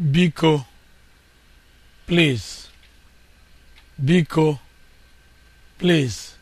biko please biko please